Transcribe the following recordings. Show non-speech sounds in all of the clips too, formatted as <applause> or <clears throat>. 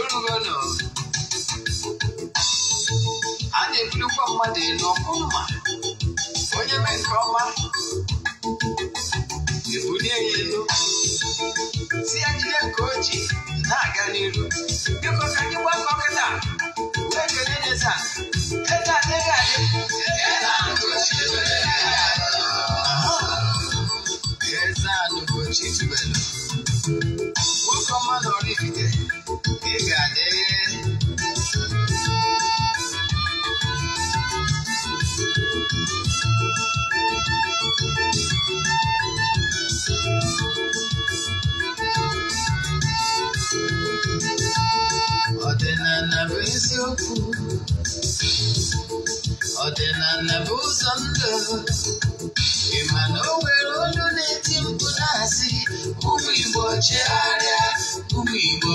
olugolo a na-ebulikwa mmadụ elu mma. onye mee nke ọma ebulie ya elu tinyegide nke o ji na-aga n'iru biko ka anyị gbakọ kịta wee kelee Netan eze ị ga-adị eziokwu ọdịnala bụ ụzọ ndụ ịma na o nwere olu na-eti mkpu na-asị ụmụ Igbo chegharịa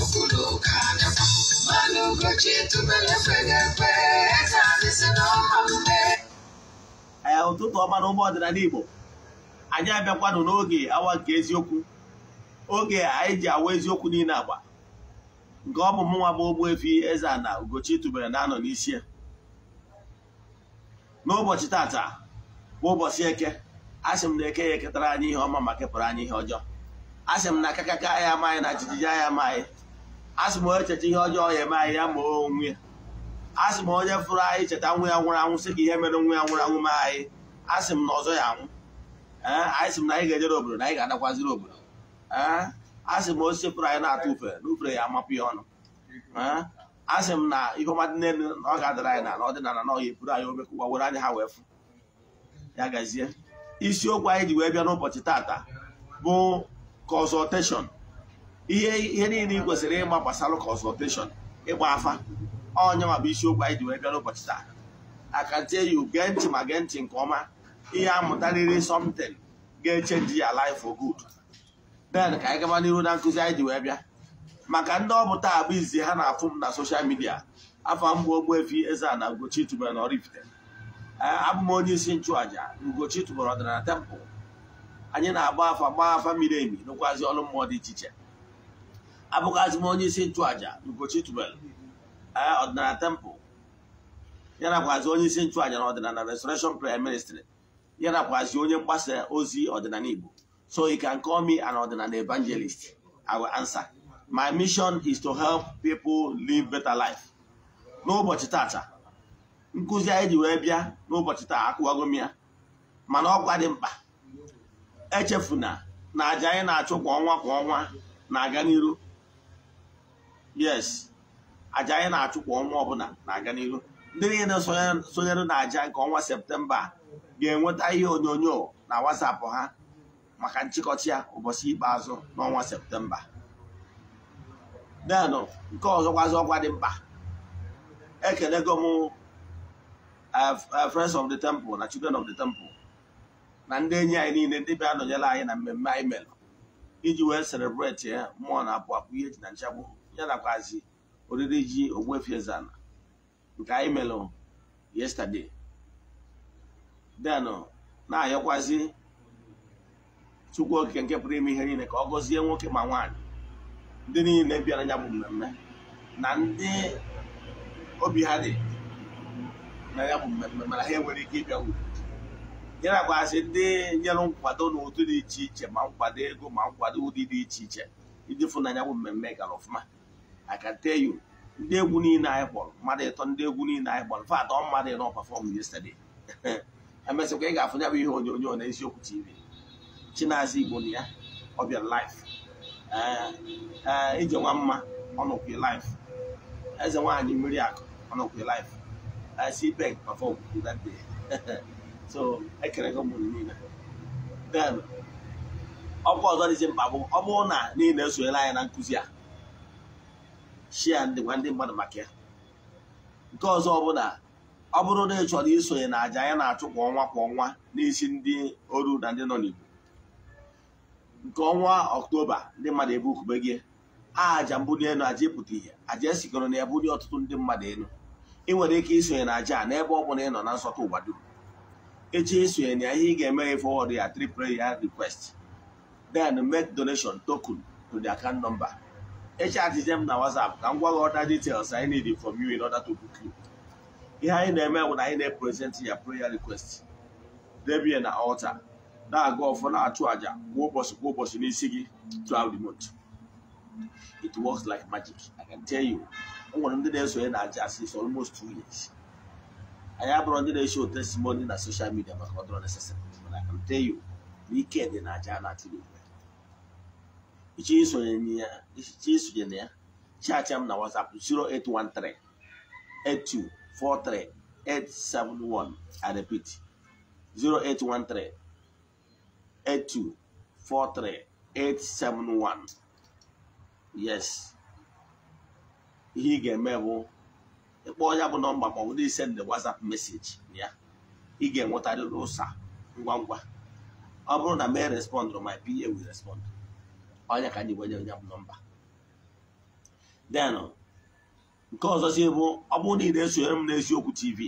pukulo ụkada mmanụ ụbọchị tubele fegekpe etadịsị n'ọma mgbe. ee ụtụtụ ọma na ụmụ ọdịnala Igbo anyị abịakwanụ n'oge awa nke eziokwu oge anyị ji awa eziokwu niile agba nke ọ bụ mụnwa bụ Ogbuefi Eze-Ana Ugochi tubele na-anọ n'isi n'ụbọchị tata bụ ụbọchị eke asị m na eke ya eketara anyị ihe ọma ma kepụrụ anyị ihe ọjọọ asị m na akakaka anyị amaghị na jijiji anya amaghị asị m onye ihe ọjọọ ya eme anyị ya ma onwe ya asị m onye fụrụ anyị cheta nwa ya nwụrụ anwụ sị ka ihe mere nwa ya nwụrụ anwụ me anyị asị m na ọzọ ya anwụ ee anyị sị m na anyị ga-ejere obodo na anyị ga-adakwaziri obodo ee asị m osisi fụrụ anyị na-atụ ufe na ufere ya amapụ ya ọnụ ee asị m na ihe ọma dị n'elu na ọ ga-adara anyị na ọdịnala na ọhịa epuru anyị kụwa were anyị ha wee fụ ya gazie isiokwu anyị ji wee bịa n'ụbọchị tata bụ consultation ihe niile ị kwesịrị ịma gbasara consultation ịgba afa onye ma bụ isiokwu anyị ji wee bịa n'ụbọchị taa akantie you gee ntị ma gee ntị nke ọma ihe amụtarịrị something ga-echenji ya life for good then ka anyị gaba n'ihu na nkụzi anyị ji wee bịa maka ndị ọ bụ taa bụ izi ha na-afụ m na soshal midia afọ mgbe efi eze na Ugochi tubelu na Oraifite eh, abụ m onye isi nchụaja ngochi tubelu ọdịnala temple anyị na-agba afa gbaa afa miri emi n'ụkwazị ọrụ mmụọ dị iche iche abụghazị m onye isi nchụaja n'ụbọchị tubelu ọdịnala tempụl ya nakwazi onye isi nchụaja na ọdịnala restoration prayer ministry ya nakwazi onye mgbasa ozi ọdịnala igbo so you can call me an ọdịnala evangelist i will answer my mission is to help people live better life n'ụbọchị tata nkụzi anyị ji wee bịa n'ụbọchị taa akụwago ya mana ọkwa dị mkpa echefuna na aja anyị na-achụ kwa ọnwa kwa ọnwa na-aga n'iru yes aja anyị na-achụ kwa ọnwa ọbụla na-aga n'ihu ndị niile sonyere na nke ọnwa septemba ga-enweta ihe onyonyo na wasapụ ha maka nchịkọta ya ụbọchị ikpeazụ n'ọnwa septemba denụ nke ọzọkwazị ọkwa dị mkpa ekelego m eh, friends of the temple na children of the temple na ndị enyi anyị niile ndị bịa nọnyere anyị na mmemme anyị mere iji wee celebrate ya mmụọ na abụ apụ ihe ji na nchagbu ya nakwazi oriri ji Ogbuefi Eze-Ana nke anyị melụ yesterday den na-ayọkwazi Chukwu Okike nke pụrụ ime ihe niile ka ọ gọzie nwoke ma nwaanyị ndị niile bịara ya bụ mmemme na ndị obi ha dị na ya bụ mmemme mana ha enwere ike ịbịa uru ya nakwazi ndị nyere nkwado na ụdị dị iche iche ma nkwado ego ma nkwado ụdị dị iche iche iji fụ na ya bụ mmemme gara ọfụma I can tell you ndị egwu niile anyị kpọrọ mmadụ ịtọ ndị egwu niile anyị kpọrọ fat ọ mmadụ ịnọ pafọm yesterday <laughs> emesịkwa ị ga-afụnya bụ ihe onyonyo na eziokwu tv Chinaza Igbo na ya ọ bịara live e, ije nwa mma ọ nọkwa live eze nwaanyị mmiri akụ ọ nọkwa live e, cpec pafọm that day <laughs> so ekere gị ụmụ niile then ọkwa ọzọ dịzi mkpa bụ ọ bụrụ na niile esonyela anyị na nkụzi a shia ndị gwa ndị mmadụ maka ya nke ọzọ ọbụla. bụla ọ bụrụ na ị chọrọ isonye na aja anyị na-achụ kwa ọnwa kwa ọnwa n'isi ndị oru na ndị nọ n'Igbo nke ọnwa ọktoba ndị mmadụ ebe ukube gị aja mbuli elu aja ịpụta ihe aja esikọrọ na ebuli ọtụtụ ndị mmadụ elu ị nwere ike isonye na aja n'ebe ọ bụla ị nọ na nsọtụ ụwa dum echi isonye na ihe ị ga-eme ya fọwọdụ ya three prayer request then make donation token to the account number echatizie m na WhatsApp ka m gwa gị ọda details anyị need from you in order to book you ihe anyị na-eme bụ na anyị na-epresent ya prayer request debie na altar na-aga ọfọ na-achụ àjà kwa ụbọchị kwa ụbọchị n'isi gị throughout the month it works like magic I can tell you o nwere ndị na-esonye na aja since almost two years anyị abụrụ ndị na-esho testimony na social media maka ọ dọrọ necessary but I can tell you na ike dị na aja na-achụ n'igwe isonye na ya chacha m na WhatsApp 0813 8243 871 I repeat 0813 871 yes ihe ị ga-eme bụ ịkpọ ya bụ nọmba ma na bụrụ isend WhatsApp meseji ya ị ga-enwetarịrị ụsa ngwa ngwa ọ bụrụ na mee respond my PA will respond onye ka anyị gwenye onye bụ nọmba den nke ọzọzi bụ ọ bụrụ na ị na-esonyere m n'eziokwu tv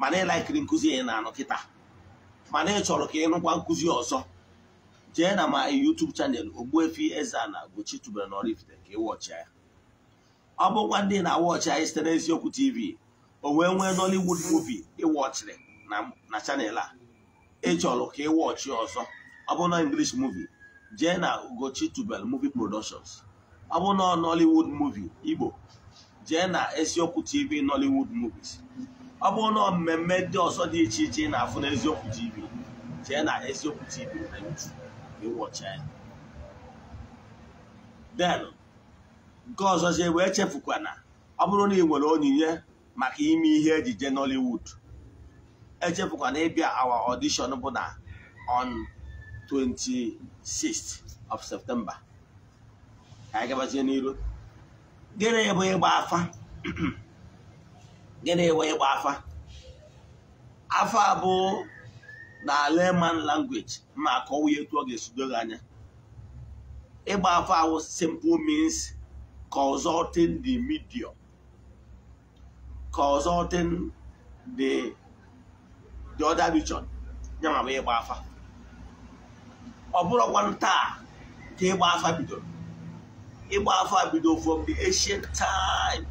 mana ịlaikiri nkụzi ị na-anụ kịta mana ị chọrọ ka ị nụkwa nkụzi ọzọ jee na ma YouTube chanel efi eze na Ugochi tubelu na Oraifite ka ị wọchịa ya ọ bụkwa ndị na-awọchị anyị site n'eziokwu tv o wee nwee Nollywood ị ịwọchịrị na chanel a ịchọrọ ka ị wọchịa ọzọ ọ bụ na English movie jee na Ugochi Tubelu movie productions ọ bụ na Nollywood movie Igbo jee na eziokwu TV Nollywood movies ọ bụ na mmemme ndị ọzọ dị iche iche na-afụ na eziokwu TV jee na eziokwu TV na YouTube ịwọcha ya den nke ọzọzie wee chefukwa na ọ bụrụ na ị nwere onyinye maka ime ihe ejije Nollywood echefukwa ịbịa awa ọdishọn bụ na ọnụ. 26th of September ka anyị gabazie n'iru gịnị bụ ịgba afa <clears throat> gịnị bụ ịgba afa afa bụ na Aleman language ma akọwa ya etu ọ ga-esido gị anya ịgba afa ahụ simple means consulting the medium consulting the the other region ya ma bụ ịgba afa ọ bụrụkwa taa ka ịgba afa bidoro ịgba afọ bido from the ancient time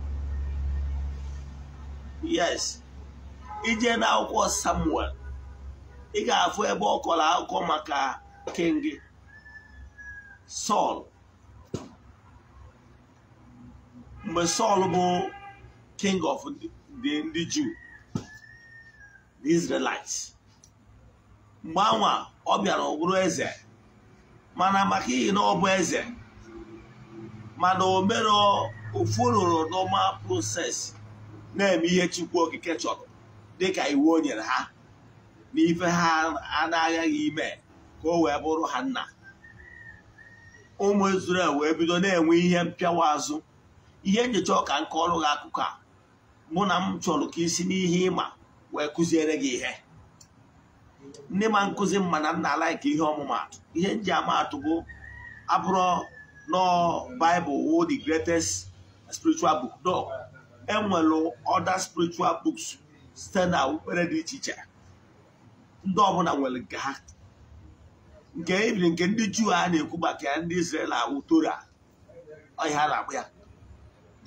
yes ije n'akwụkwọ samuel ị ga-afụ ebe ọ kọrọ akụkọ maka king sọl mgbe sọl bụ king of the ndị juu the israelites mgbe anwa ọ bịara ọ bụrụ eze mana maka ihi na ọ bụ eze mana o mere ofororo normal prosesi na-eme ihe chukwu okike chọrọ dịka iwu o nyere ha na ife ha na agaghị ime ka o wee bụrụ ha nna ụmụ Izrel wee bido na-enwe ihe mpịawa azụ ihe nyocha ọka nke ọrụ gị akụkọ a mụ na m chọrọ ka isi n'ihe ịma wee kụziere gị ihe ndị ma nkụzi m na nna alaiki ihe ọmụmatụ ihe nji amaatụ bụ abụrụ nọ Bible wo the greatest spiritual book no enwere other spiritual books site na dị iche iche ndị ọbụla nwere nke ha nke ebiri nke ndị juu a na-ekwu maka ya ndị Izrel ahụ Tora ọhịa na-akpụ ya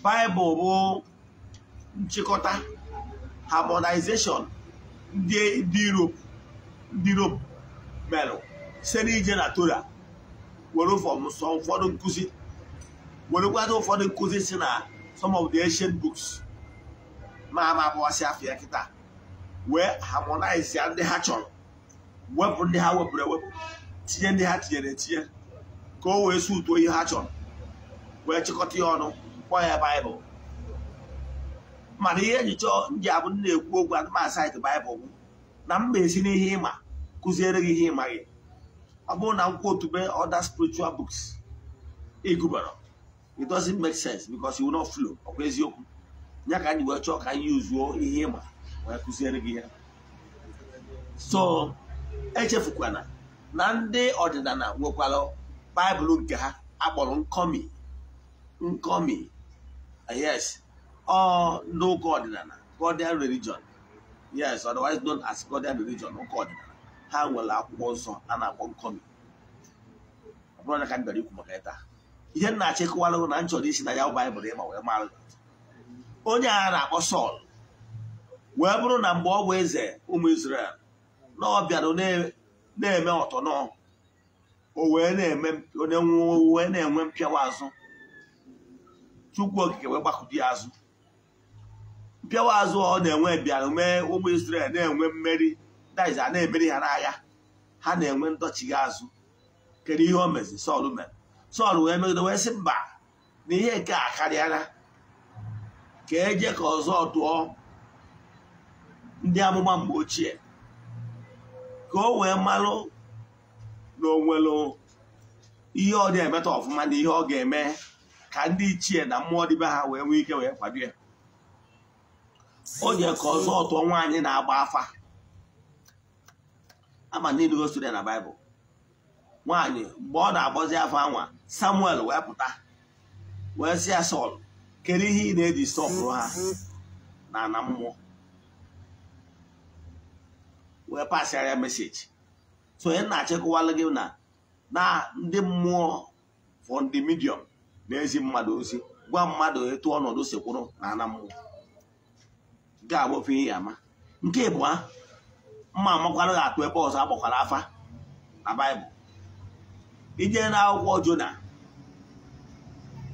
Baịbụl bụ nchịkọta harmonization ndị Europe ndị Rom merụ site n'ije na Tora were nsọ ụfọdụ nkụzi werekwado ụfọdụ nkụzi si na some of the ancient books ma ama bụwasị afịa kịta wee harmonize ya ndị ha chọrọ wepụ ndị ha wepụrụ ewepụ tinye ndị ha tinyere etinye ka o wee sutuo ihe ha chọrọ wee chịkọta ya ọnụ kpọọ ya baịbụl mana ihe njicha ndị abụ ndị na-ekwu okwu adịmasịtị baịbụl bụ na esi na-esi n'ihe ịma kụziere gị ihe ịmaghị ọ bụrụ na akwụkwọ otube other spiritual books ịgụbara it doesn't make sense because you flow ọkwa eziokwu ya ka anyị wee chọọ ka anyị uzuo ihe ịma wee kụziere gị ya so echefukwana na ndị ọdịnala nwekwara baịbụl nke ha akpọrọ nkọmi nkọmi yes ọ n'ụka ọdịnala Godian religion yes otherwise known as Godian religion ụka ọdịnala ha nwere akwụkwọ nsọ a na-akpọ nkọmi ọ bụrụ na ka m bịara ikwu maka ịta ihe m na-achịkọwara na nchọrọ isi na ya baịbụl ịma wee mara onye agha na-akpọ sọl wee bụrụ na mgbe ọ bụ eze ụmụ Izrel na ọ bịara na-eme ọtọ nọ o wee na-eme onye nwụọ wee na-enwe mpịawa azụ Chukwu okike wee gbakụdi azụ mpịawa azụ ọ na-enwe bịara mee ụmụ Izrel na-enwe mmeri daiz a na-eberi ha n'agha ha na-enwe ndọchigha azụ kedu ihe o mezi sọl mere sọl wee megide wee sị mba na ihe nke a karịala ka eje ka ọzọ tụọ ndị amụma mgbe ochie ka o wee malụ na o ihe ọ na-emeta ọfụma na ihe ọ ga-eme ka ndị ichie na mmụọ dịbe ha wee nwee ike wee kwado ya o je ka ọzọ tụọ nwaanyị na-agba afa ama niile gosiri ya na bible nwaanyị mgbe ọ na-agbazi afọ anwa samuel wee pụta wee si ya sọl kere ihe ị na-eji sọpụrụ ha na ana wee pasịara ya meseji so onye na-achịkọwalụ gị na na ndị mmụọ fọ ndị midiọm na-ezi mmadụ ozi gwa mmadụ etu ọnọdụ sikwụrụ na ana mmụọ nke a ihe ama nke ịbụa mma amakwara ga-atụ ebe ọzọ agbakwara afa na baịbụl ije na akwụkwọ jona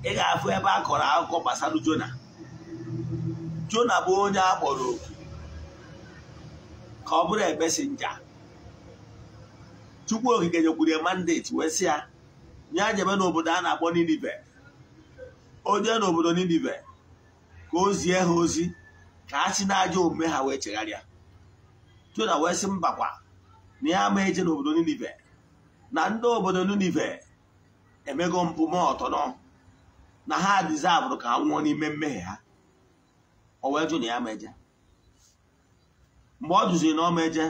ị ga-afụ ebe a kọrọ akụkọ gbasara jona jona bụ onye a kpọrọ oku ka ọ bụrụ ebesi nja chukwu okike nyekwuru ya wee sị ya nye ajebe n'obodo a na-akpọ ninive onye n'obodo ninive ka o zie ha ozi ka ha si n'ajọ omume ha wee chegharịa jona wee sị mbakwa na ya ama eje n'obodo ninive na ndị obodo ninive emego mpụ ma ọtọnọ na ha dizavụrụ ka ha nwụọ n'ime mmehie ha o wee jụ na ya ma eje mgbe ọ jụziri na ọma eje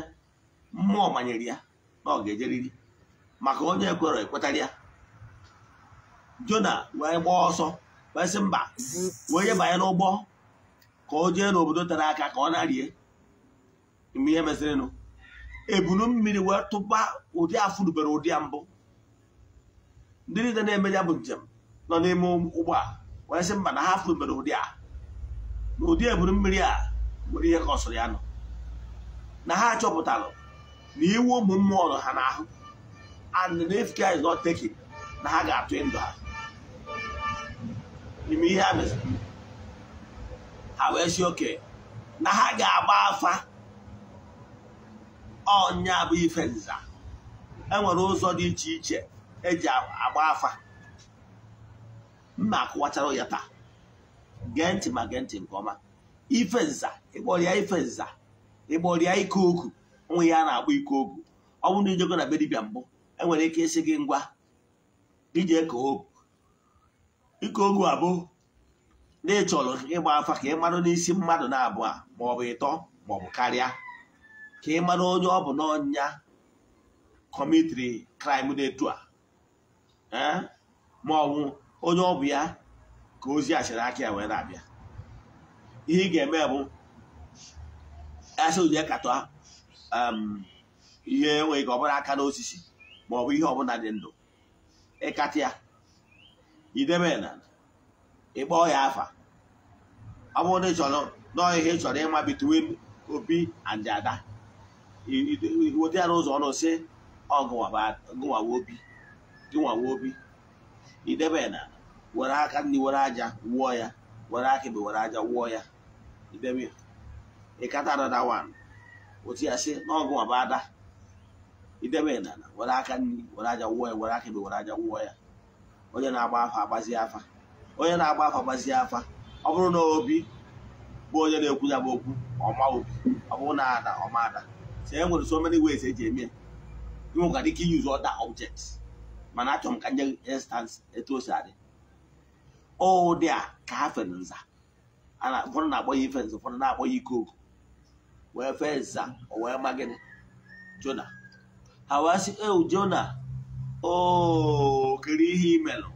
mmụọ manyere ya na ọ ga-ejeriri maka onye ekwere ekwetara ya jona wee gbaa ọsọ wee sị mba wee nye banye n'ụgbọ ka o jee n'obodo tere aka ka ọ na-arie mgbe ihe mezirinụ ebunu mmiri wee tụba ụdị afụrubere ụdị ya mbụ ndị niile na-eme ya bụ njem nọ n'ime ụgbọ a wee sị mba na ha afụrubere ụdị a na ụdị ebunu mmiri a nwere ihe ka ọ ya nọ na ha chọpụtara na iwu ụmụ mmụọ nọ ha n'ahụ and na efika is not taken na ha ga-atụ ndụ ha n'ime ihe ha meziri ha wee si oke na ha ga-agba afa ọnya bụ ife nza enwere ụzọ dị iche iche eji agba afa mma akụwachara ya taa gee ntị ma gee ntị nke ọma ife nza ịkpọrịa ife nza ịkpọrịa ike okwu onwe ya na-akpọ ike okwu ọ bụrụ na ijego na be dibịa mbụ enwere ike ịsị gị ngwa ije eke okwu ike okwu abụ na ịchọrọ ịgba afa ka ị marụ n'isi mmadụ na abụọ ma ọ bụ ịtọ ma ọ bụ karịa ka ị mara onye ọ bụ n'ọnya kọmitiri kraịm na-etu a e, ma ọ bụ onye ọ bụ ya ka ozi achịrị aka ya wee na-abịa ihe ị ga-eme bụ asị katọ ihe enweghị ka ọ bụla aka n'osisi ma ọ bụ ihe ọbụla dị ndụ ịkatịa idebe na ịkpọ ya afa ọ bụrụ na ị chọrọ n'ọhịa ị chọrọ ịma bitwin obi and ada iwodi ya n'ụzọ ọnụ si ọgụnwawa obi gịnwawa obi idebe na were aka ndị were aja wụọ ya were aka ebe were aja wụọ ya idebe ya ịkata dada wan otu ya si n'ọgụnwaba ada idebe na were aka ndị were aja wụọ ya were aka ebe were aja wụọ ya onye na-agba afa agbazie afa onye na-agba afa agbazie afa ọ bụrụ na obi bụ onye na-ekwu ya bụ okwu ọma obi ọ bụrụ na ada ọma ada so e nwere so many ways eji eme ya ike use other objects mana achọrọ m ka nye instance etu o si adị ụdị a ka ha fere nza ụfọdụ na-akpọ ya ife nza ụfọdụ na-akpọ ya ikoku wee fee nza o wee ma gịnị jona ha wee sị eu jona oo kere ihe imelụ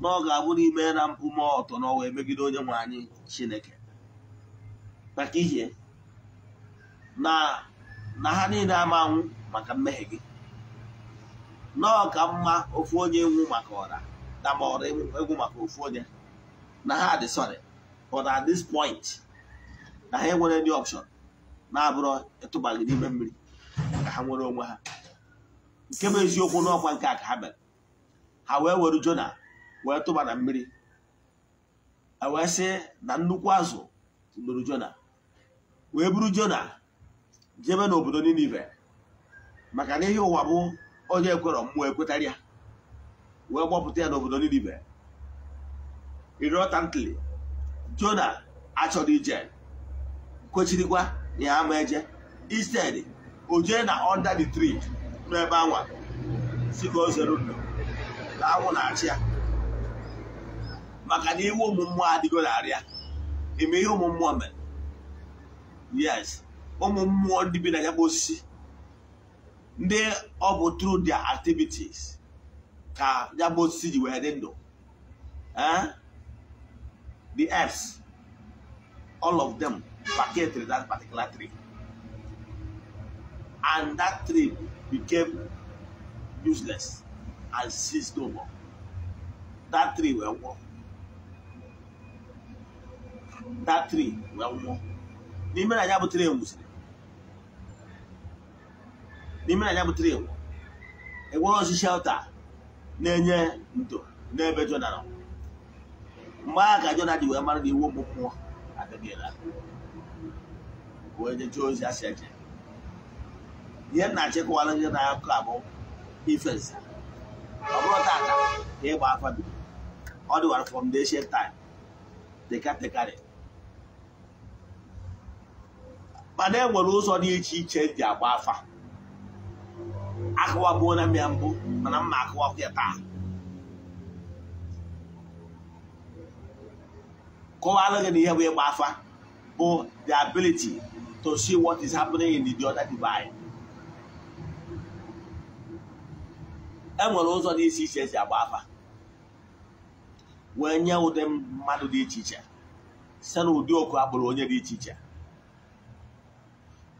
na ọ ga-abụ n'ime na mpụ ma ọtọ na ọwa megide onye nwe anyị chineke maka ihe na na ha niile ama anwụ maka mmehie gị nọọ ka mma ofu onye nwụ maka ọra dama ọra egwu maka ofu onye na ha dị sorry but at this point na ha enwere ndị ọpshọn na-abụrụ ịtụbaghị gị n'ime mmiri ka ha nwere onwe ha nke bụ eziokwu n'ọkwa nke a ka ha mere ha wee were jona wee tụba na mmiri wee sị na nnukwu azụ lụrụ jona wee buru jona jebe n'obodo Ninive maka na ihe ụwa bụ onye ekwerọ mmụọ ekwetara ya wee gbọpụta ya n'obodo Ninive irotantly Jona achọrọ ije kwechirikwa ya ama eje isted ojue na under the tree n'ebe anwa si ka o na anwụ na-achị ya maka na iwu ụmụ mmụọ adịgo narị ya ihe ụmụ mmụọ mere yes ụmụ mmụọ ndị bi na ya bụ osisi ndị ọ bụ through dia activities ka ya bụ osisi ji wee dị ndụ eh? the herbs all of them packaged that particular tree and that tree became useless and ceased no more that tree were nwụọ that tree were nwụọ n'ime na ya bụ tree nwụsịrị n'ime anya bụtara igbo enwere ozi shelta na-enye ndo n'ebe jona nọ mgbe agha ka jona ji wee mara na iwu ụmụ mmụọ adịghịla wee jechee ozi asị eje ihe nna achịkwala gị na akụkọ abụ ife nza ọ bụrụ tata ka ịgba afa bido ọ dịwara from the ancient time tekatekarị mana e nwere ụzọ dị iche iche dị e agba afa akụwabuola na ya mbụ mana mma akụwakwa ya taa kọwalụ gị na ihe bụ ịgba afa bụ the ability to see what is happening in the other divine e nwere ụzọ dị iche iche esi agba afa wee nye ụdị mmadụ dị iche iche site na ụdị oku agbụrụ onye dị iche iche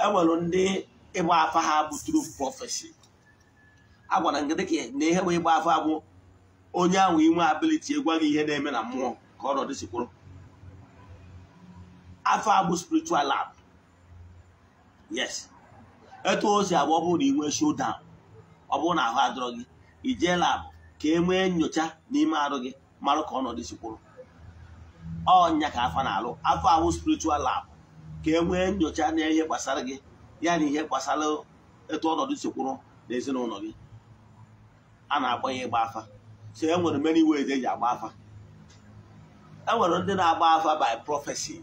e nwere ndị ịgba afa ha bụ true prophecy agwara gị dịka na ihe bụ ịgba afọ abụ onye ahụ inwe abiliti gwa gị ihe na-eme na mmụọ ka ọ nọdụ sikwuru afọ abụ spiritual lab yes etu o si agba ọ bụrụ na inwe showdown ọ bụrụ na ahụ adọrọ gị ijee lab ka e nwee nyocha n'ime arụ gị marụ ka ọnọdụ sikwuru ọnya ka afọ na-alụ afọ ahụ spiritual lab ka e nwee nyocha na ihe gbasara gị ya na ihe gbasara etu ọnọdụ sikwuru na ezinụlọ gị a na agba ya ịgba afa so e nwere many ways eji agba afa e nwere ndị na-agba afa by prophecy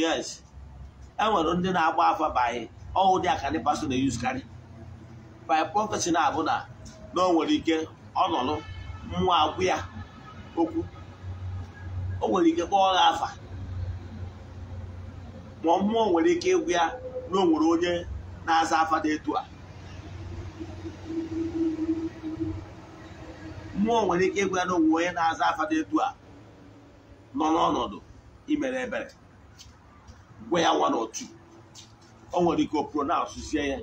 yes e nwere ndị na-agba afa by ọwụ dị aka ndị pastor na-eyuz karị by prophecy na-abụ na na o nwere ike ọ nọrọ mmụọ agwụ ya okwu o nwere ike kpọọ ha afa ma mmụọ nwere ike ịgwụ ya na o nwere onye na-aza afa dị etu a mmụọ nwere ike ịgwa na onwe onye na-aza afa etu a nọ n'ọnọdụ imere ebere gwa ya nwa n'otu o nwere ike o pronansie ya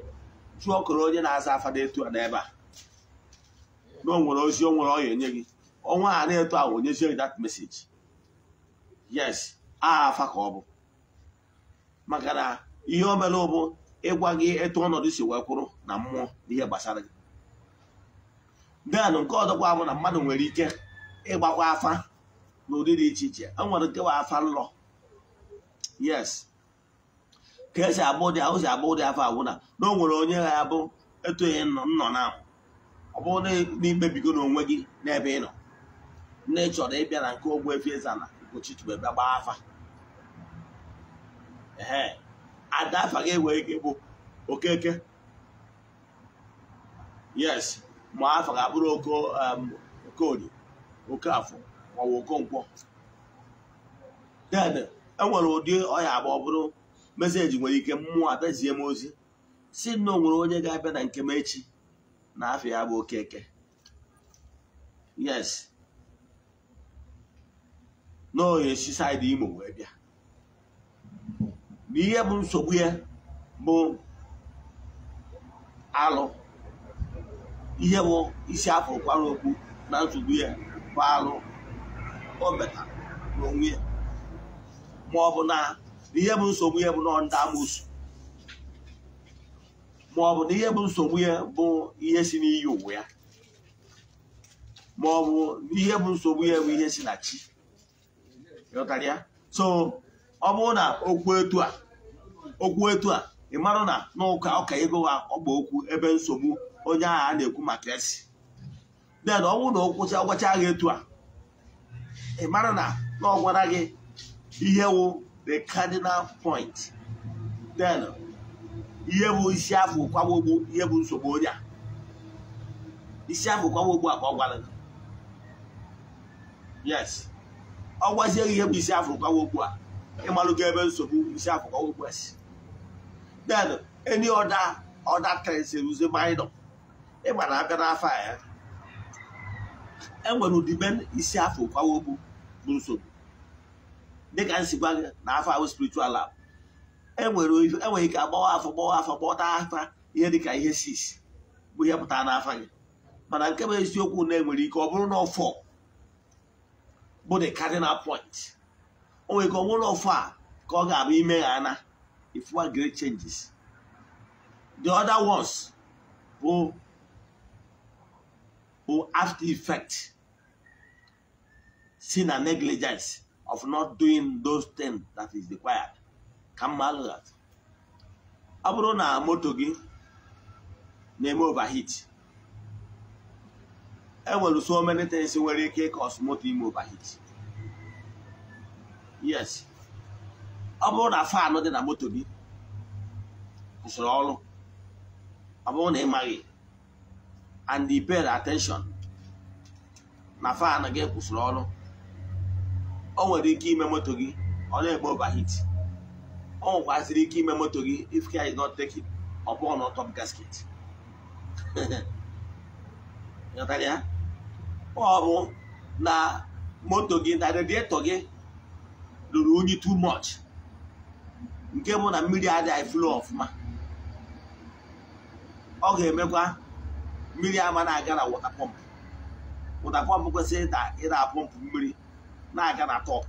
jụọ ọkọrọ onye na-aza afa etu a n'ebe a na o nwere ozi o nwere ọya enye gị ọnwa a na-eto a onyezie gị dat message yes aha afa ka ọ bụ maka na ihe o mere ụbụ ịgwa gị etu ọnọdụ si wee kwụrụ na mmụọ n'ihe gbasara gị den nke ọzọkwa bụ na mmadụ nwere ike ịgbakwa afa n'ụdị dị iche iche e nwere nkewa afa nlọ yes ka esi abụ ụdị ahụ si abụ ụdị afa awụ na na o nwere onye ha abụ etoghị nnọ na ọ bụrụ na ikpebigo n'onwe gị n'ebe ị nọ nne chọrọ ịbịa na nke Ogbuefi eze na Ugochi bịa gbaa afa ee ada afa gị nwere ike bụ Okeke yes Um, ma afọ ga-akpụrụ okorie okafọ maọbụ okonkwọ dede enwere ụdị ọya ọ bụrụ meseji nwere ike mmụọ atazie m ozi si na o nwere onye ga-abịa na nke m echi na afọ ya bụ okeke yes na onye si saịdị imo wee bịa na ihe bụ nsogbu ya bụ alụ ihe bụ isi afọ kwara okwu na nsogbu ya bụ alụ o metara n'onwe ya ma ọ bụ na ihe bụ nsogbu ya bụ na ndị amụsụ ma ọ bụ na ihe bụ nsogbu ya bụ ihe si n'iyi uwe ya ma ọ bụ ihe bụ nsogbu ya bụ ihe si na chi ịghọtara ya so ọ bụrụ na okwu etu a okwu etu a ị marụ na n'ụka ọka ego ha ọ bụ okwu ebe nsogbu onye agha a na-ekwu maka esi den ọ bụrụ na ọ kwụcha gwachaa etu a ị mara na na ọ gị ihe wụ the cardinal point den ihe bụ isi afọ kwagbogbo ihe bụ nsogbu onye a isi afọ kwagbogbo a ka ọ gwara gị yes ọ gwazie ihe bụ isi afọ kwagbogbo a ịmalụgo ebe nsogbu isi afọ kwagbogbo a si den any other other things ruzie minor ịgbara aka n'afọ ya enwere ụdịbe isi afọ kwawo bụ nsogbu dịka m si gwa gị na afọ ahụ spiritual lab enwere e ike agbawa afọ gbawa afọ gbọta afa ihe dịka ihe sis bụ ihe pụtara n'afọ gị mana nke bụ eziokwu na enwere ike ọ bụrụ na ọfọ bụ the cardinal point o nwere ike ọ bụrụ na ọfọ a ka ọ ga-abụ ime ha ana if one great changes the other ones bụ or after effect sin and negligence of not doing those things that is required ka mma that ọ bụrụ na moto gị na-eme overheat enwere so many things nwere ike ịkọs moto ime overheat yes ọ bụrụ na fanụ dị na moto gị kwụsịrị ọrụ ọ bụrụ na ị maghị and he paid attention na fan gị kwụsịrị ọrụ o nwere ike ime moto gị ọ na-eme overheat o nwekwaziri ike ime moto gị if care is not taken ọ na top gasket <laughs> ọ bụ na moto gị na radiator gị ruru unyi too much nke bụ na mmiri adịghị flow ọfụma ọ ga-emekwa mmiri ama na-aga na wọta pọmpụ wọta pọmpụ kwesịrị ịda pọmpụ mmiri na-aga na tọp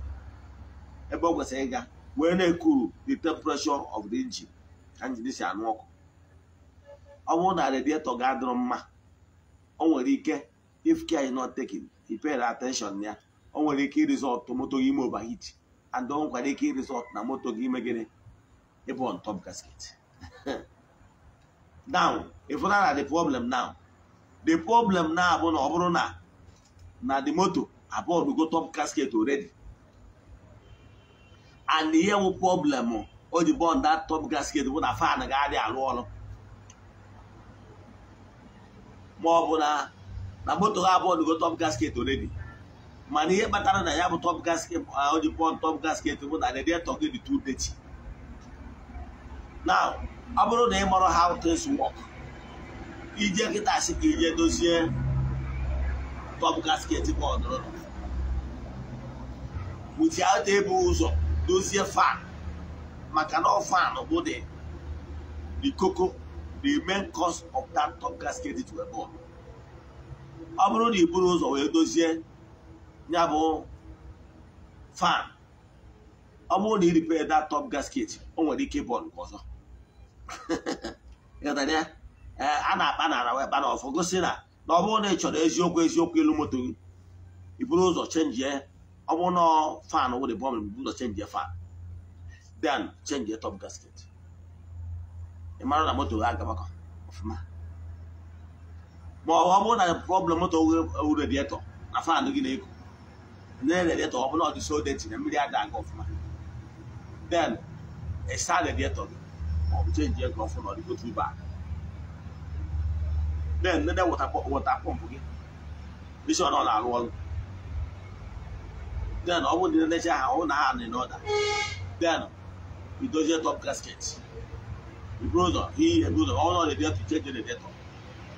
ebe ọ kwesịrị ịga wee na-ekuru the temperature of the engine ka njini si anụ ọkụ ọ bụrụ na radiator ga-adịrọ mma o nwere ike if care is not taken ipere attention ya o nwere ike irizọt moto gị ime overheat and o nwekwara ike irizọt na moto gị ime gịnị ịbụ on top gasket <laughs> now if na the problem now the problem na abụ na ọ bụrụ na na the moto abụọ go top casket already and ihe wụ problem o ji bọọ top gasket bụ na fan ga-adị alụ ọrụ ma ọ bụ na na moto ha abụọ go top gasket already mana ihe kpatara na ya bụ top gasket o top gasket bụ na radiator gị dị now ọ bụrụ na ị mara how things ije kịta asị ka ije dozie top gasket bọọdụ without ebu ụzọ dozie fan maka na ọ bụ dị the the main cause of that top gasket to a ball ọ bụrụ na i ụzọ wee dozie ya bụ fan ọ bụrụ na i that top gasket o nwere ike bọọlụ ọzọ <laughs> ya Eh, a na-akpa nara wee kpana ọfọ gosi na na ọ bụrụ na ị chọrọ eziokwu eziokwu ilu moto gị iburu ụzọ chenjie ọ bụrụ na fan wụrụ bọm iburu ụzọ chenjie fan then chenjie top gasket ị mara na moto gị agabakọ ọfụma ma ọ bụrụ na problem moto wụ redietọ na fan gị na-eku na redietọ ọ bụrụ na ọ dị sodeti na mmiri ada aga ọfụma then ịsa redietọ gị ma ọ bụ chenjie gị ọfụ na ọ dịgo tu then nede wọta pọmpụ gị isi ọ na-alụ ọrụ then ọ bụrụ na necha ha ọ na ha dị n'ọda then idozie top gasket ibrodo ihe ebudo ọ nọ rediato iche je rediato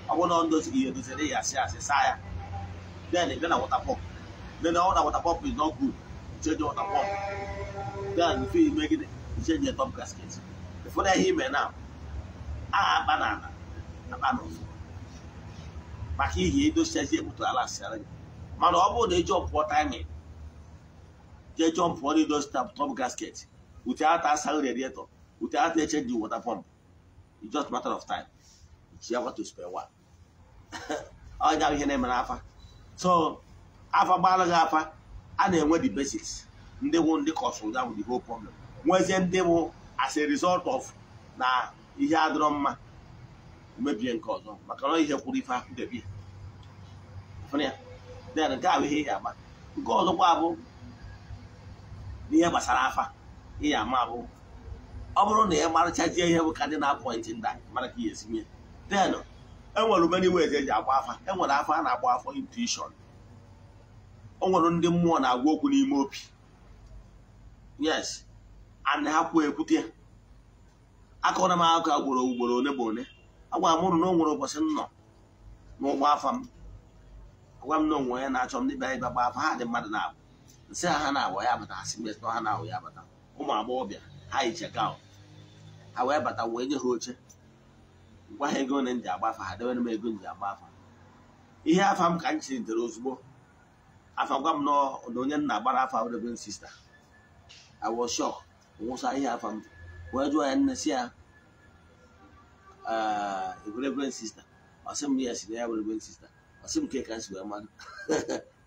ọ bụrụ na ọ ndozi ihe dozire ya asị asị saa ya then ị na wọta pọmpụ then ọ na wọta pọmpụ is not good icheje wọta pọmpụ then mfe ime gịnị iche ichenje top gasket ụfọdụ ihe ime na aha akpa na ala akpa n'ụzọ maka ihi edosiazi ebutu ala sịara gị mana ọ bụrụ na ejọmpụọ taiming jee jọmpụọ na idozi tap top gasket ute ata asaghị radiator ute ata eche dị water pump it's just matter of time ji agwa to spare one onye <laughs> ahụ ihe na-eme n'afa so afa gbaala gị afa a na-enwe the basics ndị bụ ndị kọsụrụ ahụ the whole problem nwezie ndị bụ as a result of na ihe adịrọ mma mebie nke ọzọ maka na ihe kwụrụ ife ahụ ya ebi nke ahụ ihe ya ama nke ọzọkwa abụ n'ihe gbasara afa ihe ama abụ ọ bụrụ na ị marịchajie ihe bụ ka ndị na-apọịntị nda mara ka ihe esi den enwere many ways eji agba afa enwere afa a na-agba afọ intuition o nwere ndị mmụọ na-agwa okwu n'ime obi yes ana ha kwuo ekwute akọrọ m akụkọ ugboro ugboro one bụ one agwara m ụrụ na o nwere ụbọchị nnọ n'ụgbọ afọ m agwa m na onwe onye na-achọ m dịbịa ịba gba afa ha dị mmadụ na-abụ nsị ha ha na-abụ ya bata ha si mes na ha na-abụ ya bata ụmụ agbọghọbịa ha yi cheka ha wee bata wee nye ha oche gwa ha ego na m ji agba afọ ha debere m ego m ji agba afa ihe afọ m ka m chiritere ozugbo afa gwa m na onye nna gbara afa reverend sista I was shocked nwụsa ihe afa m wee jụọ ya nne si ya reverend ah, sister ọsị m ya si <laughs> na ya bụ reverend sister ọsị m nke ka si wee mmadụ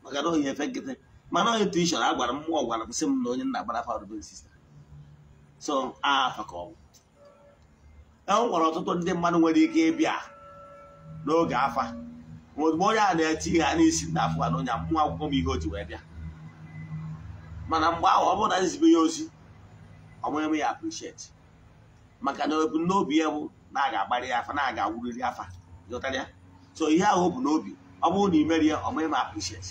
maka na ohi efe nkịtị mana onye tuishọn a gwara m mmụọ gwara m sị m na onye nna gbara fa reverend sister so afọ ka ọ bụ e nwere ọtụtụ ndị mmadụ nwere ike ịbịa n'oge afa ozugbo onye a na-eti ha a n'isi na afọ na onye mmụọ akwụkwọ m ihe o wee bịa mana mgbe ahụ ọ bụrụ na nzibe ya ozi ọ mụghị m ya appreciate maka na ebumnobi ya bụ na aga agbarị ya afa na aga awuriri afa ya so ihe ahụ bụ n'obi ọ bụrụ na ị mere ya ọ maghị m appreciate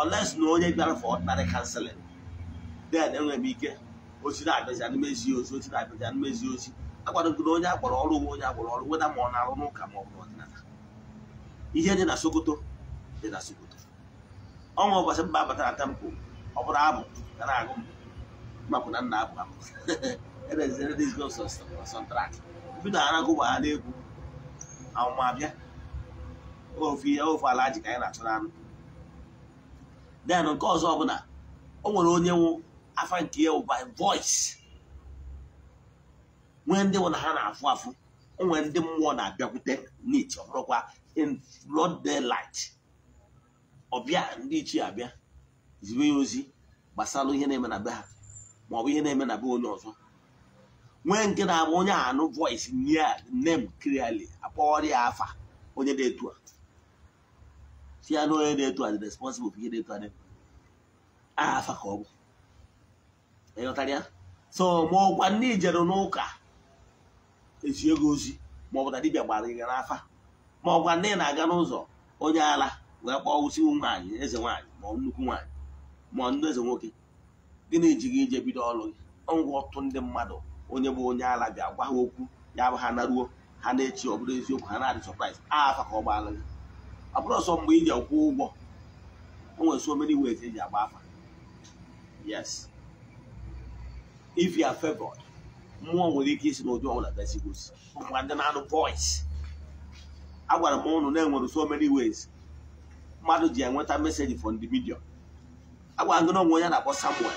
unless na onye bịara for ordinary counseling then enwere m ike ozi na-abịazi anụmezi ozi ozi na-abịazi anụmezi ozi akwadogodo onye akpọrọ ọrụ nwe onye akpọrọ ọrụ weda ma ọ na-arụ n'ụka ma ọ bụ n'ọdịnala ihe dị na sokoto dị na sokoto ọnwa ụbọchị mba na tempo ọ bụrụ abụ ga na-agụ m mapụ na nna abụ abụ bido aragụ waghara egwu awụmabịa ofu ihe ofe ala ji ka anyị na achọ anụ den nke ọzọ ọbụla o nwere onye nwụ afa nke ya by voice nwee ndị nwụ na ha na-afụ afụ o nwere ndị mmụọ na-abịakwute n'iche ọbụrụkwa bụrụkwa in broad daylight ọbịa ndị ichie abịa zibe ya ozi gbasara ihe na-eme na be ha maọbụ ihe na-eme na be onye ọzọ nwee nke na-abụ onye anụ voice nye name clearly akpọrọ ya afa onye na-etu a si ya na onye na-etu a dị responsible ihe na-etu a afa ka ọ bụ ịghọtara ya so ma ọkwa ndị ijeru n'ụka esi ego ozi ma ọ bụ na dibịa gbara ya n'afa ma ọkwa ndị na-aga n'ụzọ onye ala wee kpọọ ụsi nwaanyị eze nwaanyị ma nnukwu nwaanyị ma ndị eze nwoke gịnị ji gị ije bido ọrụ gị ọgwụ ọtụtụ ndị mmadụ onye bụ onye ala bịa gwa ha okwu ya bụ ha naruo ha na-echi ọ bụrụ eziokwu ha na-adị sọpraịz afa ka ọ gbaala gị ọ bụrụ ọsọ mgbe ị ji akwụ ụgwọ o nwere so many ways eji agba afa yes if you are favored mmụọ nwere ike isi n'ụdị ọbụla besigosi ọkwa ndị na-anụ voice agwara m ụnụ na-enwere so many ways mmadụ ji enweta meseji from the media agwara gị na onwe onye na-akpọ Samuel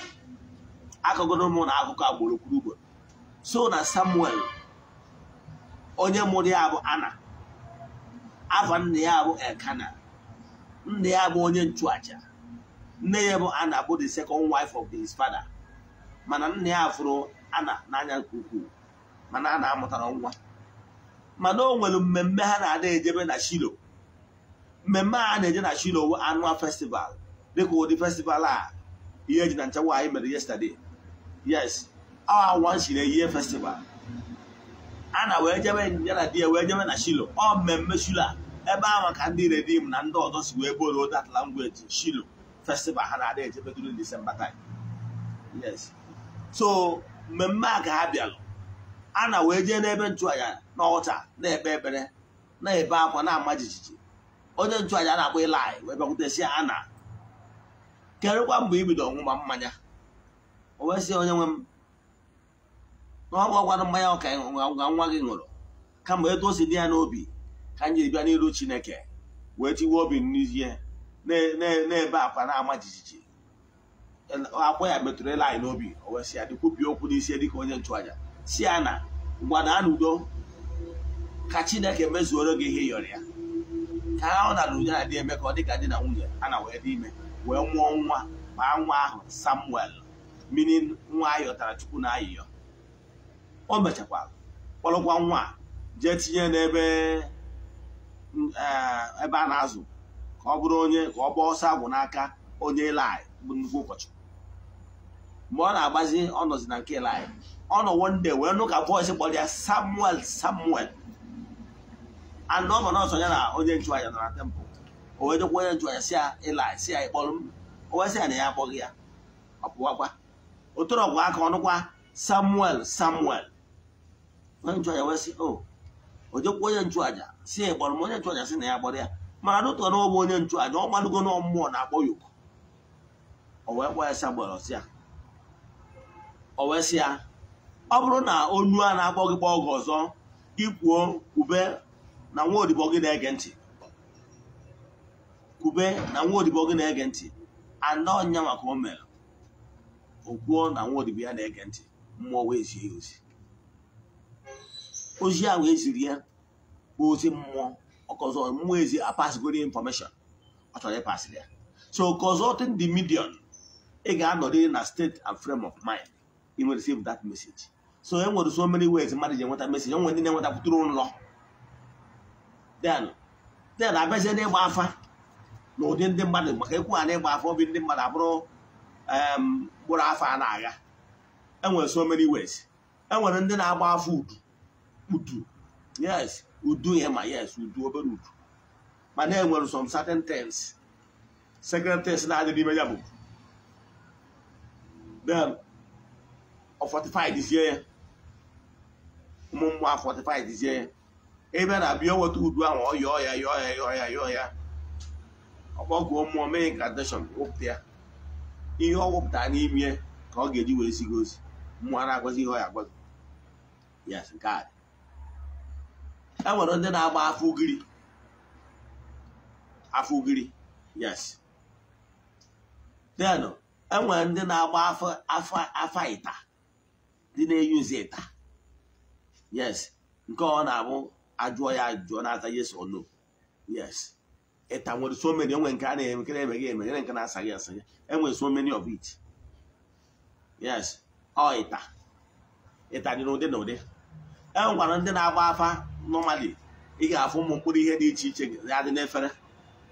akọgoro m na akụkọ agboro kwuru ugboro so na samuel onye mụrụ ya bụ ana afa nna ya bụ elkana nna ya bụ onye nchụacha nne ya bụ ana bụ the second wife of his father mana nna ya fụrụ ana n'anya nke ukwuu mana a amụtara nwa mana o nwere mmemme ha na-ada ejebe na shilo mmemme a na-eje na shilo wụ annual festival dịka ụdị festival a ihe eji na nchekwa anyị mere yesterday yes our ah, once in a year festival ana wee jebe ya na di ya wee jebe na shilo ọ mmemme shilo a ebe a ka ndị redim na ndị ọzọ si wee boro that language shilo festival ha na adị ejebe during December time yes so mmemme a ka ha bịalụ a na wee jee n'ebe nchụaja na ọcha na-ekpe ekpere na-ebe akwa na-ama jijiji onye nchụaja na-akpọ ịlaị wee bịakwutesi a na kerụkwa mgbe ibido ọṅụma mmanya o wee sị onye nwe m na ọ mmanya ọka ngwa nwa gị ṅụrụ kama etu o si dị ya n'obi ka m bịa n'iru chineke wee tiwe obi n'ihe na-ebe akwa na-ama jijiji akwa ya metụrụ ịla anyị n'obi o wee sị ya dịkwupi okwu n'isi dịka onye nchụaja si ya na ngwana n'udo ka chineke mezuoro gị ihe yọrọ ya ka ahụ na udo na dị eme ka ọ dị ka di na nwunye a na wee dị ime wee mụọ nwa ma nwa ahụ samuel mmiri nwa ayọtara chukwu na ayịyọ o mechakwara kpọrọkwa nwa jee tinye n'ebe mm, eh, ebe a na-azụ ka ọ bụrụ onye ka ọ gbaa ọsọ agwụ n'aka onye lai bụ nnukwu ụkọchukwu mgbe ọ na-agbazi ọ nọzi na nke lai ọ nọ wonde wee nụ ka bọịsị kpọrọ ya samuel samuel and ọ nọ n'ọsọ ya na onye nchụaja nọ na tempụl o wee dịkwa onye nchụaja si ya ilai si ya ịkpọrọ m o wee sị ya na ya akpọghị ya ọ pụwakwa o torọkwa aka ọnụkwa samuel samuel onye nchụaja wee sị o jekwa onye nchụaja si ya m onye nchụaja si na ya kpọrọ ya ma arụtọ na ọbụ onye nchụaja ọ malugo na mmụọ na-akpọ ya oku kpọ ya sị si ya o wee ya ọ bụrụ na onu a na-akpọ gị kpọọ gị ọzọ ikwuo kwube na nwa odibo gị na-ege ntị kwube na nwa odibo gị na-ege ntị anọ ọnya maka o mere o kwuo na nwa odibo ya na-ege ntị mmụọ wee zie ya ozi ozi ahụ eziri ya bụ ozi mmụọ ọkọzọ mmụọ ezi apasgoro infọmeshọn ọ chọrọ ịpasịrị ya so consulting the medium ị ga-anọrịrị na steeti and frame of mind ị nwere receive dat message so e nwere so many ways mmadụ ji enweta message enwere ndị na-enwetapụtụrụ nlọ then then abịazie n'ịgba afa na ụdị ndị mmadụ maka ekwughara na ịgba afa obi ndị mmadụ abụrụ mkpụrụ afa a na-agha enwere so many ways enwere ndị na-agba afọ udu udu yes udu ya ma yes udu obere udu mana enwere some certain things second things na-adị n'ime ya bụ then ọ fortified izie ya ụmụ mmụọ a fortified izie ya ebe na-abịa weta udu ahụ ọ yọọ ya yọọ ya yọọ ya yọọ ya ọkpọgụọ mmụọ mee gradation wụpụta ya ihe ọ wụpụtara n'ime ka ọ ga-eji wee gị ozi mmụọ na-agwazi ihe ọ ya agwazi yes nke a e nwere ndị na-agba afọ ugiri afọ ugiri yes then e nwere ndị na-agba afọ afọ afọ ịta ndị na-eyuzi ịta yes nke ọ na-abụ ajụọ ya ajụọ na-ata yes or no yes ịta nwere so many enwe nke a na-eme nke na-emeghị emeghere nke e na-asaghị asa asaghị enwere so many of it yes ọ ịta ịta dị n'ụdị na ụdị e nwekwara ndị na-agba afa nọmali ị ga-afụ ụmụ mkpụrụ ihe dị iche iche ya dị n'efere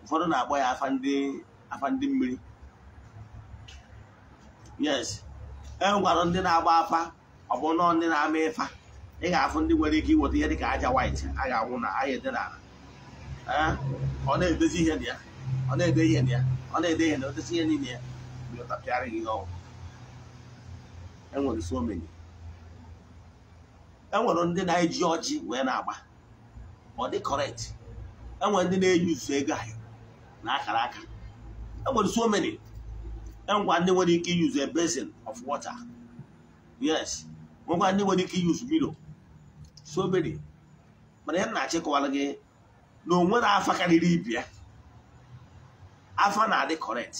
ụfọdụ na-akpọ ya afa ndị afa ndị mmiri yes e nwegwara ndị na-agba afa ọ bụ nọọ ndị na-ama ịfa ị ga-afụ ndị nwere ike iweta ihe dị ka aja white a ga-anwụ na aha ede n'ala ọ na-edezi ihe na ya ọ na-ede ihe na ya ọ na-ede ihe na otesi ihe niile ya bịa ọtapịarị gị ọgwụ enwere so omenye. enwere ndị na-eji ọjị wee na-agba ọ dị correct enwere ndị na-eyi uzu ego ahụ na akara aka enwere so many ngwa ndị nwere ike use a basin of water yes ngwa ndị nwere ike use milo so many mana ya na-achịkọwara gị na onwe na afa karịrị ibe ya afa na-adị correct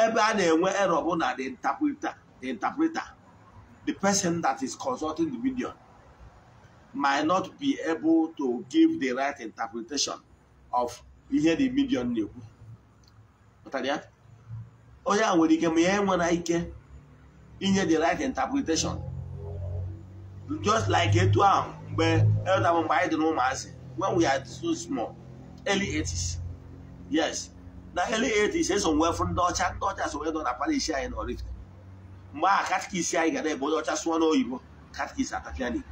ebe a na-enwe error bụ na the interpreter dị interpreter the person that is consulting the video might not be able to give the right interpretation of ihe the medium na-ekwu onye a nwere ike ma ya enwere ike inye the right interpretation just like etu ahụ mgbe elda mgbe anyị dị n'ụmụazị when we are so small early 80s yes na early 80s eso nwee fụ ndị ọcha ndị ọcha so nwe nọ na parish anyị na Oraifite mgbe aha katkis anyị gara ebe onye ọcha sụọ n'oyibo katkis atapịa n'igbo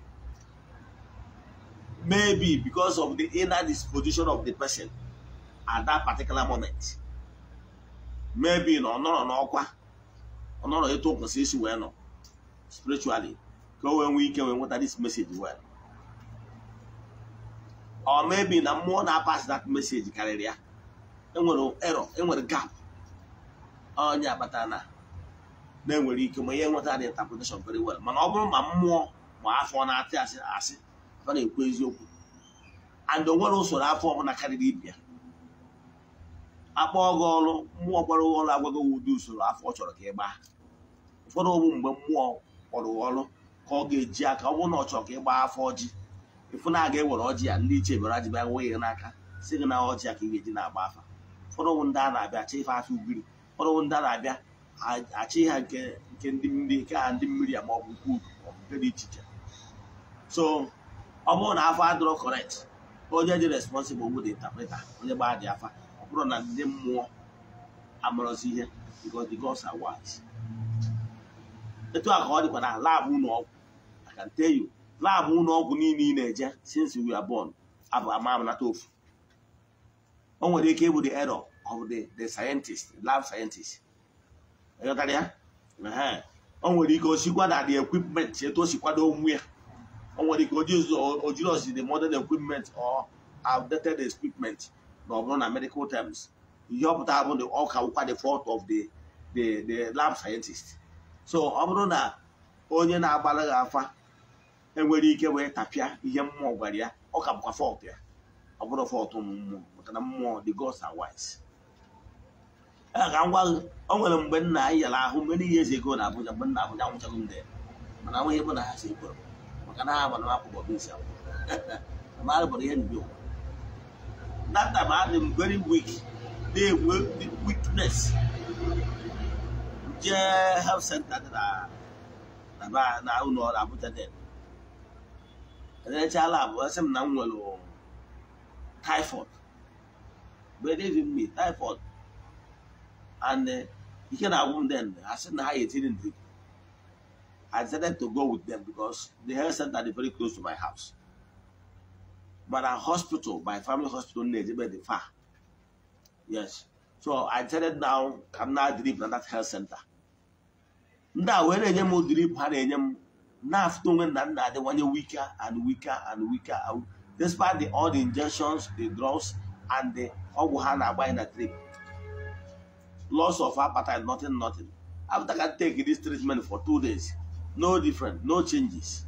maybe because of the inner disposition of the person at that particular moment maybe na ọ nọrọ n'ọkwa ọ nọrọ etu o isi wee nọ spiritually ka o wee nwee ike wee nweta this message well or maybe na mmụọ na pass that message karịrị ya enwere error enwere gap onye akpata na na-enwere ike ma ihe nweta the interpretation very well mana ọ bụrụ ma mmụọ ma afọ na-atị asị ọ na-ekwu eziokwu and o usoro afọ ọbụla karịrị ibe ya gị ọrụ mmụọ kpọrọ gị ọrụ agwaghị ụdị usoro afọ ọ chọrọ ka ị gbaa ụfọdụ ogbu mgbe mmụọ kpọrọ gị ọrụ ka ọ ga-eji aka ọ bụrụ na ọ chọrọ ka ị gbaa afọ ọjị ịfụ na aga ewere ọjị ya ndị iche bịara jibịa nwe ya n'aka si gị na ọjị ya ka ị ga-eji na-agba afa ụfọdụ ogbu ndị a na-abịa achọ ife afọ ugiri ụfọdụ ndị a na-abịa achị ha nke ndị mmiri nke ha ndị mmiri ya ma ọ bụ nke udu ọ bụ nke dị iche iche so ọ bụrụ na afọ adịrọ correct onye dị responsible bụ dị interpreter onye gbaa dị afa ọ bụrụ na ndị mmụọ amarọzi ihe because the gods are wise etu a ka ọ dịkwa na laabụ ụlọ ọgwụ I can tell you laabụ ụlọ ọgwụ niile ị na-eje since we are born abụ amamanata ofu o nwere ike ịbụ the error of the the scientist lab scientist ịghọtara ya o nwere ike osikwa na the equipment etu o si kwado onwe ya o nwere ike o osi the modern equipment or outdated equipment na ọ bụrụ na medical terms ihe ọ bụ ọ ka wụkwa the of the the the lab scientist so ọ bụrụ na onye na-agbara gị afa enwere ike wee tapịa ihe mmụọ gwara ya ọ ka bụkwa fọt ya ọ bụrụ fọt ụmụ maka na mmụọ the gods nwere mgbe nna anyị ahụ mgbe n'ihe ego na abụja mgbe nna nwụchago m mana nwe ihe bụ na ha si makana ha bana ko bobi sa mara bari hen yo that time I am very weak they work with weakness sent health center da da ba na uno da buta de da cha lab wasam nan walo typhoid but they give me typhoid and uh, eh, you can have one then I said na ha yetinin drip I decided to go with them because the health center is very close to my house. But our hospital, my family hospital, is very far. Yes. So I decided now, I'm now drip at that health center. Now, when I am drip, I na now after when that they one weaker and weaker and weaker. Despite the, all the injections, the drugs, and the Oguhana in the drip. Loss of appetite, nothing, nothing. After I take this treatment for two days, no different no changes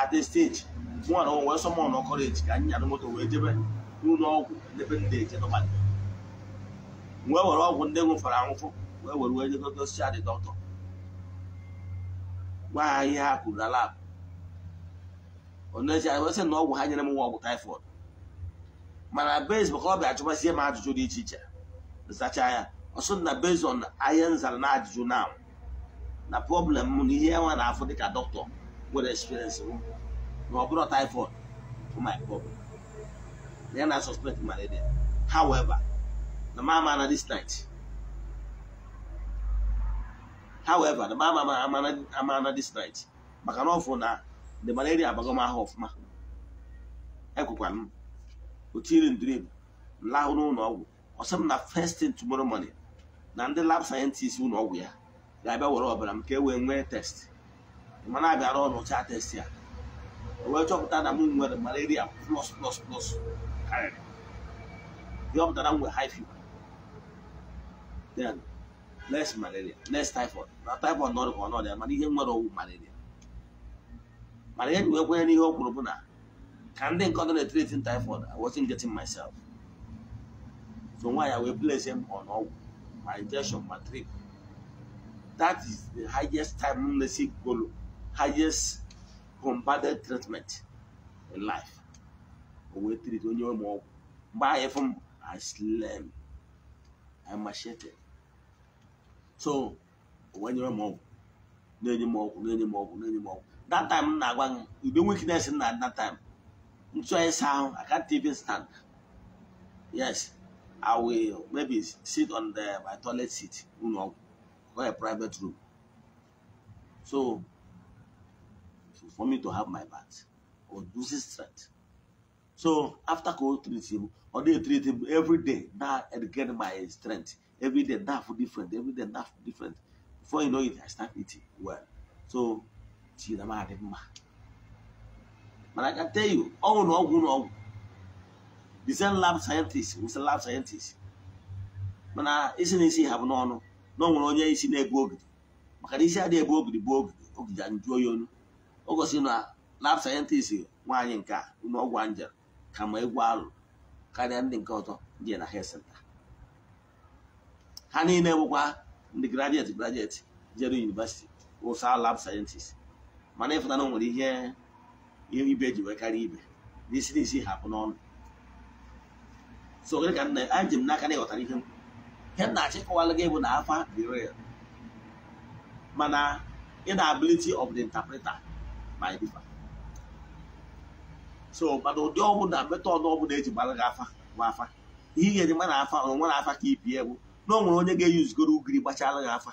at a stage nwana o wee sọmọ nọ kọleji ka anyị nyara moto wee jebe n'ụlọ ọgwụ n'ebe ndị eje n'ụbalị wee were ọgwụ ndị nwụfara anwụfụ wee were wee jegogosia dị dọkịta gwa ha ihe ha kwuru na lab oneji anyị sị na ọgwụ ha nyere m nwa ọgwụ taifọd mana base maka ọ bịa ajụbazie m ajụjụ dị iche iche zacha ya ọsọ na based on ihe nzara na ajụjụ na na problem m na ihe nwa na-afụ dịka dọkịta nwere experience m na ọ bụrụ typhoid bụ my problem na ya na suspect malaria however na ma ama na this night however na ma ama na this night maka na ọfụ na the malaria abago m ahụ ọfụma ekwekwana m otiri drip m lahụ n'ụlọ ọgwụ ọsọ m na first thing tomorrow morning na ndị lab scientist ụlọ ọgwụ ya ga-abịa were ọbara m ka e wee nwee test mana abịara ọrụcha test ya wee chọpụta na m nwere malaria plus plus plus karịrị ihe ọ pụtara m nwere high fever then less malaria less typhoid na typhoid na ọrịa ọnọdụ ya mana ihe nwere ọwụ malaria mana ihe wee kwenye n'ihe o kwuru bụ na ka ndị nkọdụ na-etretin typhoid I wasn't getting myself so nwaanyị wee place m on ọgwụ ma injection ma trip That is the highest timelessy goal, highest combated treatment in life. We treat onye ụmụ ọgwụ mgbe anyị fụ m I slam I machete so onye ụmụ ọgwụ na-enye m ọgwụ na-enye m ọgwụ na-enye m ọgwụ that time m na-agwa gị ube weakness na that time ntụ anyị saa I can't even stand yes I will maybe sit on the my toilet seat ụlọ ọgwụ or a private room. So, for me to have my bath or loses strength. So after cold treat him, or they treat him every day. Now and get my strength every day. Now for different, every day now for different. Before you know it, I start eating well. So, see the man. But I can tell you, oh no, oh no. The same lab scientist, who's a lab scientist. But now, uh, isn't it? Have no, no. na ọ nwere onye isi na-ebu ogidi maka na isi adịghị ebu ogidi bụ ogidi ogidi nju oyi onu o gosi na lab sayentist nwaanyị nke a ọgwụ anjel ka ma egwu alụ karịa ndị nke ọtọ ndị na health center ha niile bụkwa ndị graduate gradet jere university ụsa lab sayentist mana ịfụtana na nwere ihe ibe ji karịa ibe n'isi n'isi hapụ n'ọnụ so gịnị ka anyị ji m n'aka na ịghọtara ihe m ihe m na-achị kọwalụ gị bụ na afa dị real mana inability of the interpreter my differ so mana ụdị ọbụla metọd ọbụla eji gbara gị afa nwa afa ihe ga-eji mara afa nwa na afa ka ibie bụ na o nwere onye ga-eyuzigoro ugiri gbachala gị afa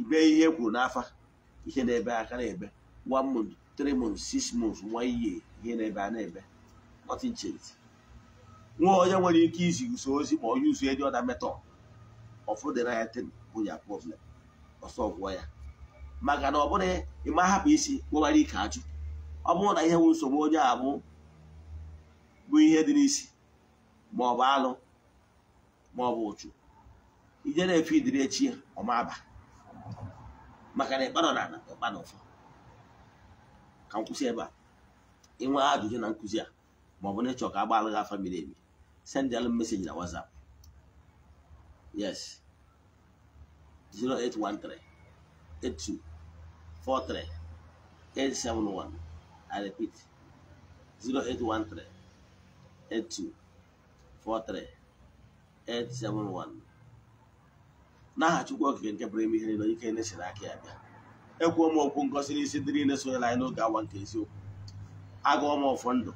ibe ihe e kwuru n'afa ihe na-ebe aka na-ebe one month three months six months one year ihe na-ebe a na-ebe nothing changed nwa onye nwere ike izi uso ozi ma onye uso dị ọda metọ ọfụ ya bụ ya problem ọsọ ya maka na ọ bụrụ ịma hapụ isi kpọbara ike ajụ ọ bụrụ na ihe nwe nsogbu onye a bụ bụ ihe dị n'isi ma ọ bụ alụ ma ọ bụ ụchụ ije na-efe idiri echi ya ọmaba maka na ịkpanọ na ịkpa ịkpanọ ụfọ ka m kwụsị ebe a ịnwe ajụjụ na nkụzi a ma ọ bụ na ịchọ ka a gbalụ gị miri emi send the message na WhatsApp. Yes. 0813 82 43 871. I repeat. 0813 82 43 871. N'aha okike nke pụrụ ime ihe niile ike na akị aka ya bịa. Ekwuo m okwu ngosi n'isi ndị niile sonyela anyị n'oge awa nke eziokwu. Agụọ m ọfọ ndụ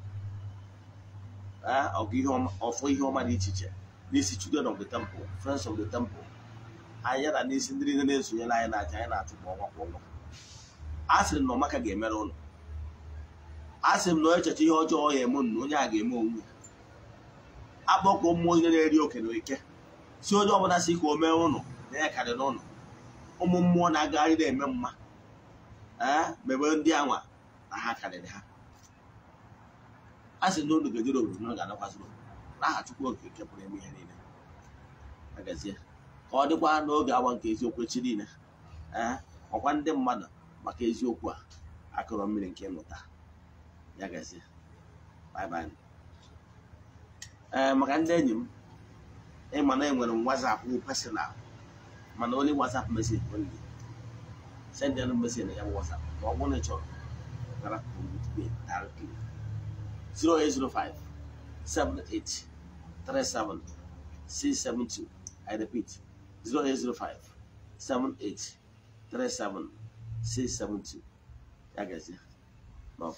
ọfọ ihe ọma dị iche iche n'isi children of the temple friends of the temple anyị ya na n'isi ndị niile na-esonye na anyị na-aja anyị na-achụ kwa ọnwa kwa ọnwa a sịrị na ọmaka ga-emere ụlọ a sịrị m na echeche ihe ọjọọ ya eme na onye a ga-eme onwe akpọkọ mmụọ onye na-eri oke na ike si onye ọbụla si ka o mee ụlọ na ya n'ụlọ ụmụ mmụọ na-agagharị na-eme mma ee eh? mebe ndị anwa na ha karịrị ha a sị na unu ga-ejere obodo unu ga-adakwasị n'aha Chukwu oke nke pụrụ ime ihe niile agazie ka ọ dịkwa n'oge awa nke eziokwu echi niile ee ọkwa ndị mmadụ maka eziokwu a akụrọ mmiri nke ịmụta ya gazie bye ee maka ndị enyi m ịma na nwere m wazapụ personal mana onye wazap mesi only send ya na ya bụ wazap ma ọ bụrụ na ị chọrọ gara direct 0805 78 672. I repeat 0805 78 37 672. That guy's My